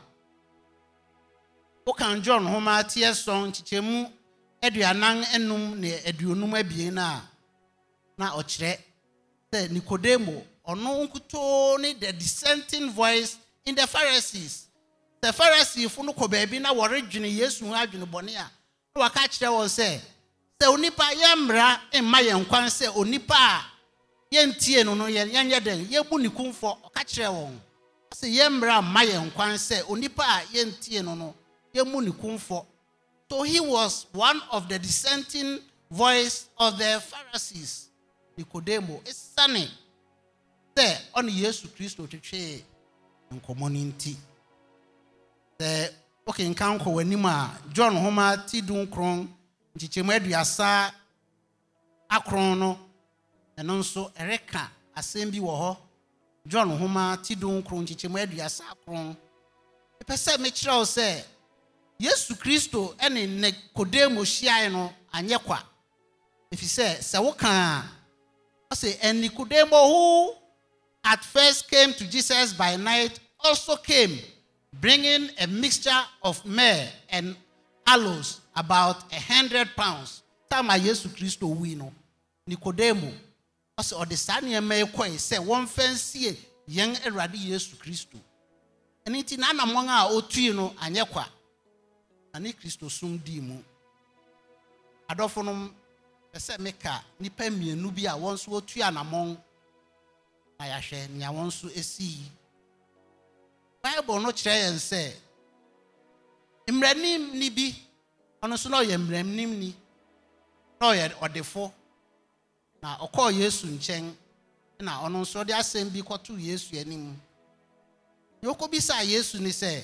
wokan john homa teɛ sɔn kyekyɛmu aduanan enum ne aduonum abien no a na ɔkyerɛ sɛ nikodemo ɔno nkutoo ne the dissenting voice in the pharisees sɛ pharisifo no kɔ baabi na wɔredwene yesu ho adwene bɔne a na waka kyerɛ wɔn sɛ sɛ onipa yɛmmra mma yɛn kwan sɛ onipa a yɛntie no no yɛnyɛ dɛn yɛbu ne kumfɔ ɔka kyerɛ wɔn sɛ yɛmmra mma yɛn kwan sɛ onipa a yɛntie no no So he was one of the dissenting voice of the Pharisees. Nicodemo, it's sunny. There, on Jesus Christ, to che and community. The okay, in Kanko, when John Homer, Tidun Kron, Chichemeduasa, Akrono, and also Ereka, Asembi Waho, John Homer, Tidun Kron, Chichemeduasa Kron. The person Mitchell said yesu kristo ne ne kodemo hyiae no anyɛ kwa ɛfiri sɛ sɛ woka a ɔsɛ and nikodemo who at first came to jesus by night also came bringing a mixture of myrrh and aloes about a hundred pounds time a yesu kristo wui no nikodemo ɔsɛ ɔde saa nneɛma yi kɔe sɛ wɔmfa nsie yɛn awurade yesu kristo ɛno nti n'anammɔn a ɔtui no anyɛ kwa ne kristosum dii mu adɔfonom pɛ sɛ meka nnipa mmienu bi a wɔn nso wɔtu anammɔn na yɛahwɛ nea wɔn nso sii bible no kyerɛ yɛn sɛ mmerɛnimni bi ɔno nso na ɔyɛ mmerɛnimni na ɔyɛ ɔdefo na ɔkɔɔ yesu nkyɛn na ɔno nso ɔde asɛm bi kɔtoo yesu anim deɛ ɔkɔbisaa yesu ne sɛ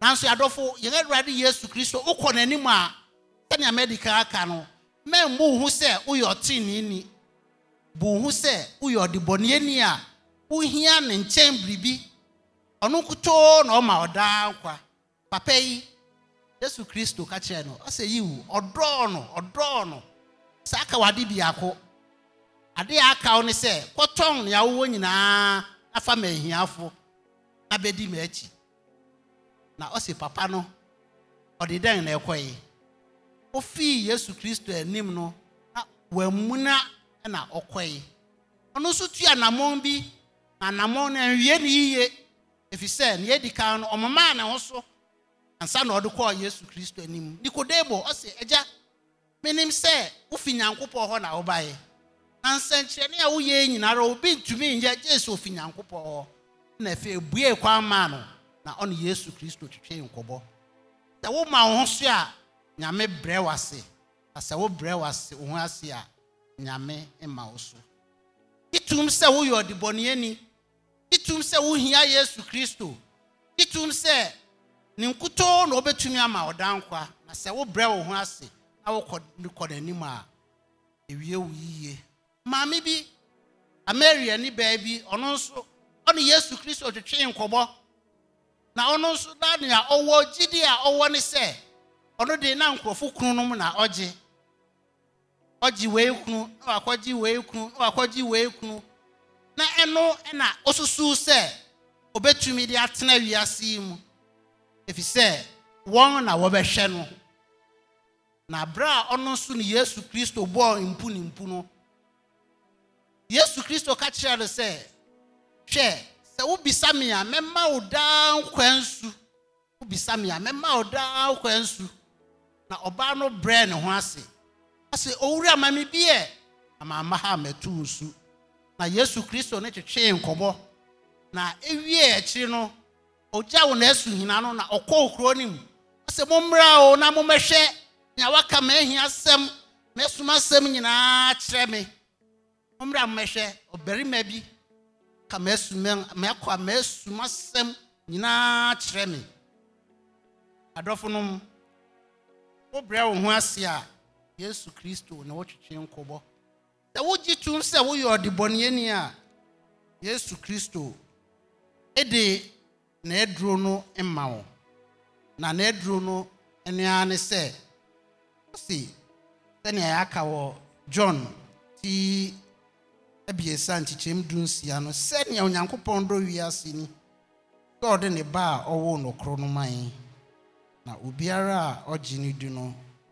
nanso yɛadɔfo yɛn awurade yesu kristo wokɔ n'anim a sɛnea medical aka no mmɛn bu ho sɛ woyɛ ɔteeneeni bu ho sɛ woyɛ ɔdebɔneeni a wohia ne nkyɛn biribi ɔno kutoo na ɔma ɔdaa nkwa papa yi yesu kristo ka kyerɛ no ɔsɛ yiwu ɔdɔɔ no ɔdɔɔ no saa ka wade biako ade a aka wo ne sɛ kɔtɔn nea wowɔ nyinaa afa ma ahiafo na bɛdi m'akyi na ọ sị papa nọ ọ dị dan na ɛkɔe ofii yesu kristo enim no na wamuna na ọ nọ nso tụọ anammɔn bi na anammɔn no ɛnwie ne yie efisɛ nea edi kan no ɔmomaa na ho so ansa na ɔde kɔɔ yesu kristo anim nikodemo ɔsi ɛgya menim sɛ wofi nyankopɔn ọhụrụ na yi na nsɛnkyerɛnne a woyɛ nyinara obi ntumi nyɛ gye sɛ ofi nyankopɔn ọhụrụ na afei ebue kwan maa nọ. na ɔne yesu kristo twetwe nkɔbɔ sɛ woma wo ho so a nyame brɛ wo ase na sɛ wobrɛ wo ase wo ho ase a nyame ma wo so itum sɛ woyɛ ɔdebɔneani itum sɛ wohia yesu kristo itum sɛ ne nkutoo na wobɛtumi ama ɔdankwa na sɛ wobrɛ wo ho ase na wokɔ n'anim a ewie wo yie maame bi ameria ni baabi ɔno nso ɔne yesu kristo twetwe nkɔbɔ na ɔno nso na nea ɔwɔ gyidi a ɔwɔ ne sɛ ɔno de na nkurɔfo kunu no mu na ɔgye ɔgye wei kunu na wakɔgye wei kunu na wakɔgye wei kunu na ɛno na ɔsusu sɛ obetumi de atena wiase yi mu efi sɛ wɔn na wɔbɛhwɛ no na abira a ɔno nso ne yesu kristo bɔɔ mpu ne mpu no yesu kristo ka kyerɛ no sɛ hwɛ. sɛ wobisa me a mɛma wo daa nkwa nsu wobisa me a mɛma wo daa nkwa nsu na ɔbaa no brɛ ne ho ase ase owura ma me biɛ amaama ha mɛto nsu na yesu kristo ne twetwee nkɔmɔ na ewie akyiri no ogya wo esu hina no na ɔkɔ kuro no mu ɔsɛ mommra o na mommɛhwɛ nea waka m'ahia asɛm m'asoma asɛm nyinaa kyerɛ me mommra mommɛhwɛ ɔbarima bi ka mɛkɔ a mɛsum asɛm nyinaa kyerɛ me adɔfo nom wobrɛ wo ho ase a yesu kristo na wotwetwe nkɔbɔ sɛ wogye tom sɛ woyɛ ɔdebɔneani a yesu kristo ɛde n'aduro no mma wo na n'aduro no nua ne sɛ ɔsi sɛnea yɛaka wɔ john ti abiesa nkyekyɛm du nsia no sɛnea onyankopɔn dɔ wiase ni sɛ ne ba a ɔwoo nokorɔ no man na obiara a ɔgye no di no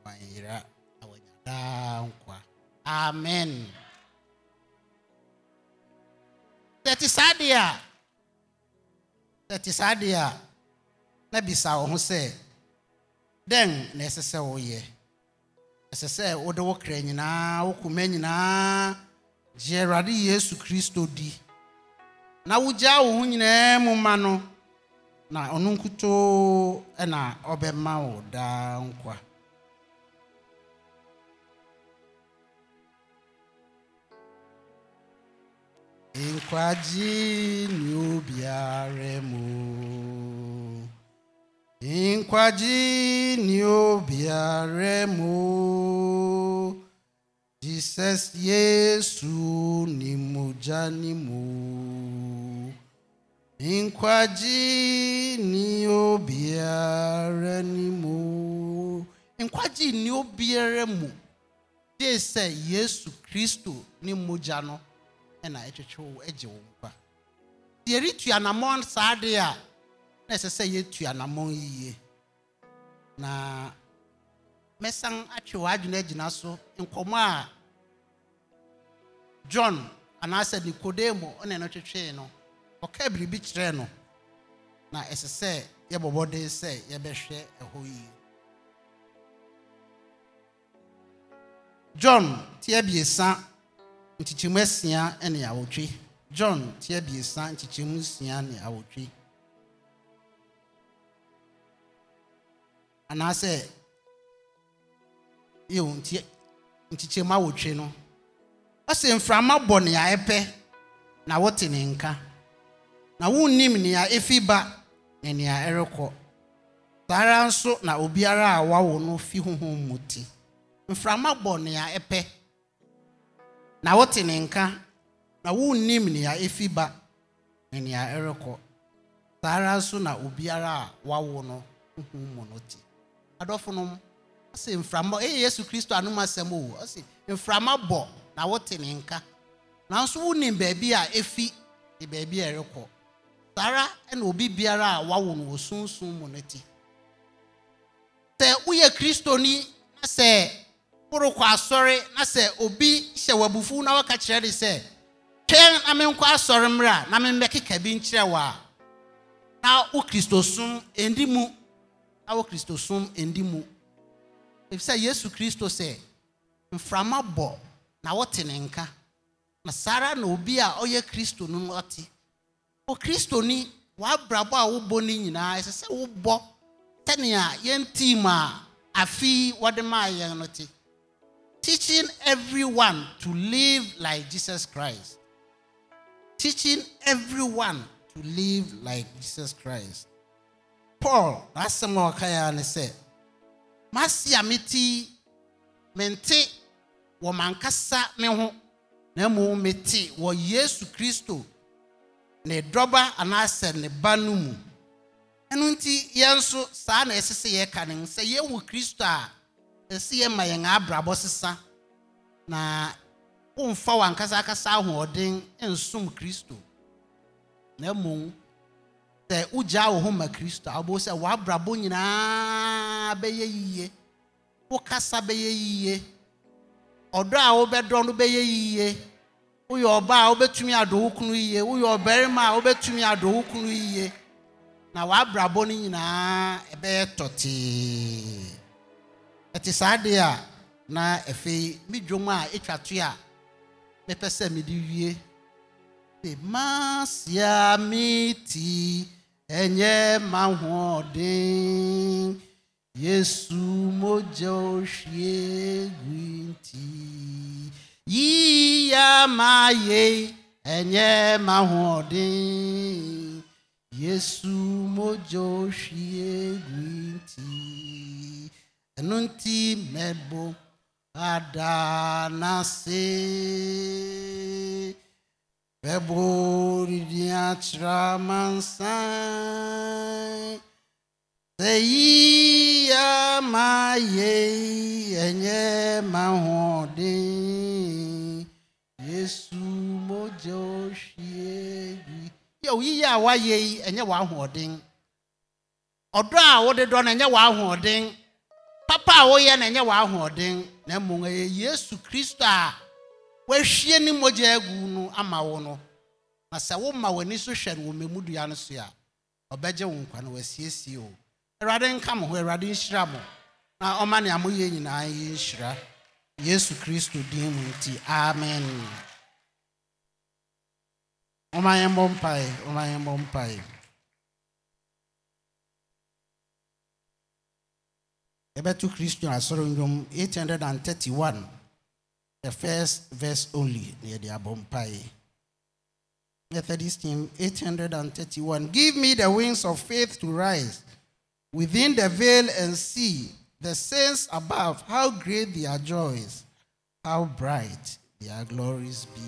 wanyera na wanya daa nkwa amen sɛ te saa deɛ a sɛ te saa deɛ a na bisa wo ho sɛ dɛn na ɛsɛ sɛ woyɛ ɛsɛ sɛ wode wo kra nyinaa wo koma nyinaa gye awurade yesu kristo di na wogyaa wo ho nyinaa mu ma no na ɔno nkutoo na ɔbɛma wo daa nkwa nkwagye ne obiara mụ. nkwagye ne obiara mụ. dissesse Yesu ni mujani mu nkwagye ni obiara ni mu nkwagye ni obiara mu de sɛ Yesu Kristo ne mogya no ɛna ɛtwetwe wo agye wo nkwa deɛ retu anammɔn saa adeɛ a na ɛsɛ sɛ yɛtu anammɔn yie na mɛsan atwe so nkɔmmɔ a john anaasɛ nikodemo ne no twetwee no ɔka biribi kyerɛ no na ɛsɛ sɛ yɛbɔbɔden sɛ yɛbɛhwɛ ɛhɔ yie john ti abiesa nkyekyɛmu asia ne awotwe john ti abiesa nkyekyɛmu nsia ne awotwe anaasɛ yɛwɔ nti nkyekyɛmu awotwe no ɔsɛ mframa bɔ nea ɛpɛ na wote ne nka na wonnim nea efi ba ne nea ɛrekɔ saa ara nso na obiara a wawo no fi honhom mu ti mframa bɔ nea ɛpɛ na wote ne nka na wonnim nea efi ba ne nea ɛrekɔ saa ara nso na obiara a wawo no honhom mu no ti adɔfo no ɔsɛ mframa ɛyɛ yesu kristo anom asɛm o ɔsɛ mframa bɔ na wote ne nka nanso wonim baabi a efi ne baabi a ɛrekɔ saa na obi biara a wawo no wɔ sunsum mu no ti sɛ woyɛ kristoni na sɛ worokɔ asɔre na sɛ obi hyɛ w'abufuw na waka kyerɛ de sɛ twɛn na menkɔ asɔre mmerɛ a na memmɛkeka bi nkyerɛ wɔ a na wo kristosom ɛndi mu na wo kristosom ɛndi mu ɛfiri sɛ yesu kristo sɛ mframa bɔ na wɔte ne nka na saa ara na obi a ɔyɛ kristo no ɔte okristoni w'abrabɔ a wobɔ no nyinaa ɛsɛ sɛ wobɔ sɛnea yɛn team a afi wɔde maa yɛn no te teaching everyone to live like jesus christ teaching everyone to live like jesus christ paul n'asɛm a ɔka ya ne sɛ masi a meti mente wɔ mankasa me ho na mmom mete wɔ yesu kristo ne dɔba anaasɛ ne ba no mu ɛno nti yɛn nso saa na ɛsɛ sɛ yɛka ne sɛ yɛwɔ kristo a ɛsɛ yɛma yɛn abrabɔ sesa na womfa wankasakasa ahoɔden nsom kristo na mmom sɛ wogyaa wo ho ma kristo a wobɛwo sɛ w'abrabɔ nyinaa bɛyɛ yie wo kasa bɛyɛ yie Ọdọ a wobɛdɔ no bɛyɛ yie woyɛ ɔbaa a wobɛtumi adɔ wo kunu yie woyɛ ɔbarima a wobɛtumi adɔ wo kunu yie na w'abrabɔ no nyinaa ɛbɛyɛ tɔtee ɛte saa adeɛ a na afei me dwom a ɛtwa to a mepɛ sɛ mede wie de masia me ti ɛnyɛ mahoɔden Yesu moja gwinti yiya maye enye mahodi Yesu moja oshiegwinti enunti mebo adanase mebo ridiatra mansai Èyí á máa yẹ ẹ̀yẹ́ máa Yesu mojo ohwie bi. Yẹ oyiyi a wayɛ yi ɛnyɛ w'ahoɔden. Ɔdɔ a wɔde dɔ no ɛnyɛ w'ahoɔden. Papa a wɔyɛ no ɛnyɛ w'ahoɔden. Na mmom ɛyɛ Yesu Kristo a wahwie ne mogya agu no ama wo no. Na sɛ woma w'ani so hwɛ no wɔ mmɛmu no so a, ɔbɛgye wo nkwa na wasiesie o. awurade nka mo ho awurade nhyira mo na ɔma nea moyɛ nyinaa yɛ nhyira yesu kristo din mu ti. amen ɔma yɛn bɔ mpae ɔma yɛn bɔ mpae yɛbɛto kristo asɔre nnwom 831 the first verse only na yɛde abɔ Methodist team 831. Give me the wings of faith to rise within the veil and see the saints above, how great their joys, how bright their glories be.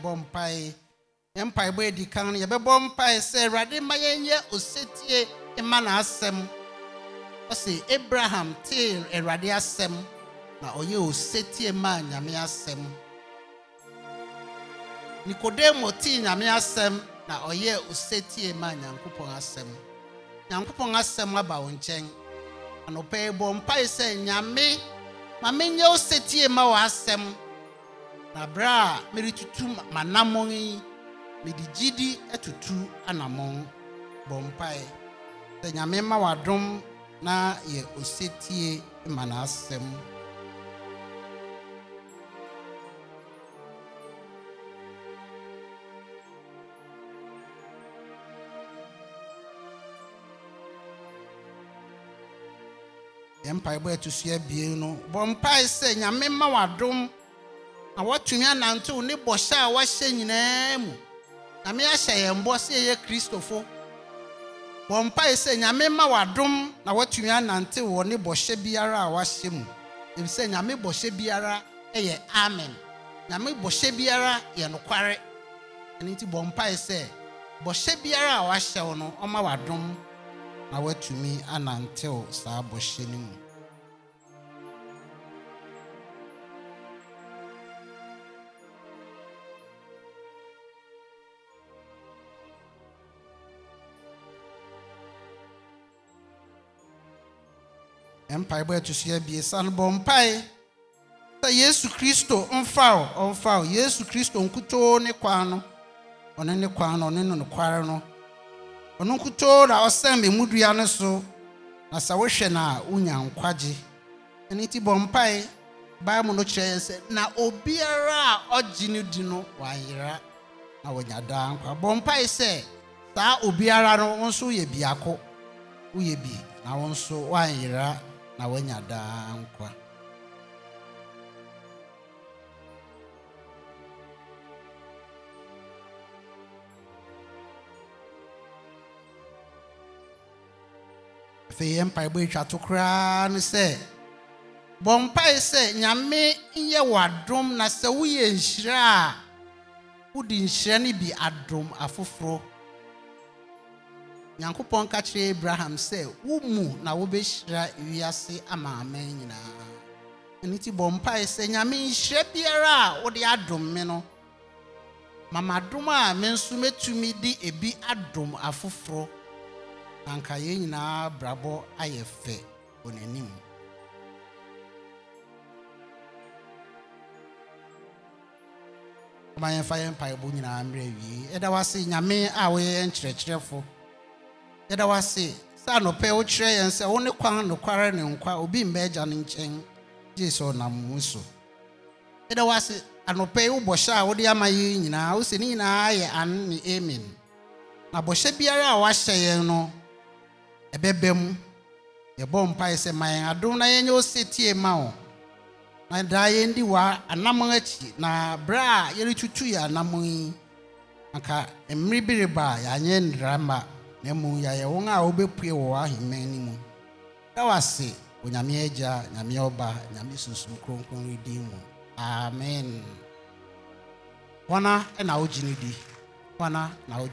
yɛbɔ mpae yɛn mpaebɔ edi kan no yɛbɛbɔ mpae sɛ awurade ma yɛnyɛ osetie ma n'asɛm ɔsi abraham tee awurade asɛm na ɔyɛ osetie ma nyame asɛm nikodemo tee nyame asɛm na ɔyɛ osetie ma nyankopɔn asɛm nyankopɔn asɛm aba wo nkyɛn anɔpɛ bɔ mpae sɛ nyame ma menyɛ osetie ma wɔ asɛm na a meretutu m'anammɔn yi mede gyidi atutu etutu bɔ mpae sɛ nyame ma w'adom na yɛ osetie ma n'asɛm yɛ mpaebɔ ɛto so abien no bɔ mpae sɛ nyame ma w'adom na wɔatumi anantew ne bɔhyɛ a wɔahyɛ nyinaa mu nyame ahyɛ yɛn bɔ sɛ yɛyɛ kristofo wɔn mpae sɛ nyame ma wadom na wɔatumi anantew wɔ ne bɔhyɛ biara a wɔahyɛ mu ebi sɛ nyame bɔhyɛ biara yɛ amen nyame bɔhyɛ biara yɛ nokware ɛno nti bɔ mpae sɛ bɔhyɛ biara a wɔahyɛw no ɔma wadom na wɔatumi anantew saa bɔhyɛ no mu mpaebɔ ɛto so abiesa no bɔ mpae sɛ yesu kristo mfaw ɔmfaw yesu kristo nkutoo ne kwan no ɔne ne kwan no ɔne no nokware no ɔno nkutoo na ɔsɛn mmɛmudua no so na sɛ wohwɛ no a wonya nkwagye ɛno nti bɔ mpae bible no kyerɛ yɛn sɛ na obiara a ɔgye no di no wayera na wɔnya daa nkwa bɔ mpae sɛ saa obiara no wo nso woyɛ biako woyɛ bi na wo nso woanyera na wanya daa nkwa afei yɛ mpaebɔ atwa to koraa no sɛ bɔ mpae sɛ nyame nyɛ w'adom na sɛ woyɛ nhyira a wode nhyira no bi adom afoforɔ nyankopɔn ka kyerɛ abraham sɛ wo mu na wobɛhyira wiase ama aman nyinaa ɛno nti bɔ mpae sɛ nyame nhyira biara a wode adom me no mamadom a me nso mɛtumi de ebi adom afoforɔ na anka yɛn nyinaa brabɔ ayɛ fɛ wɔ n'anim ma yɛmfa yɛn mpaebɔ nyinaa mmerɛ wie ɛda wase nyame a woyɛ yɛn kyerɛkyerɛfo yɛda wase sɛ anɔpɛ wokyerɛ yɛn sɛ wo ne kwan nokware ne nkwa obi mma agya no nkyɛn gye sɛ ɔnam wo so yɛda wase anɔpɛ yi wo a wode ama yi nyinaa wo sɛ ne nyinaa yɛ an ne amen na bɔhyɛ biara a wahyɛ yɛn no ɛbɛbɛ mu yɛbɔ mpae sɛ ma yɛn adom na yɛnyɛ wo setie ma wo na daa yɛndi wa anam akyi na berɛ a yɛretutu yɛ anammɔn yi anka mmere bi reba a yɛanyɛ nnira na mmom yɛayɛ wɔn a wɔbɛpue wɔ ahemman no mu na wase onyame agya nyame ɔba nyame sunsum kronkron redin mu amen hɔna na wogye no di hɔna na wogye